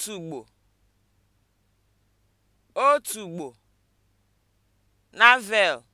otùgbò otùgbò (Navel)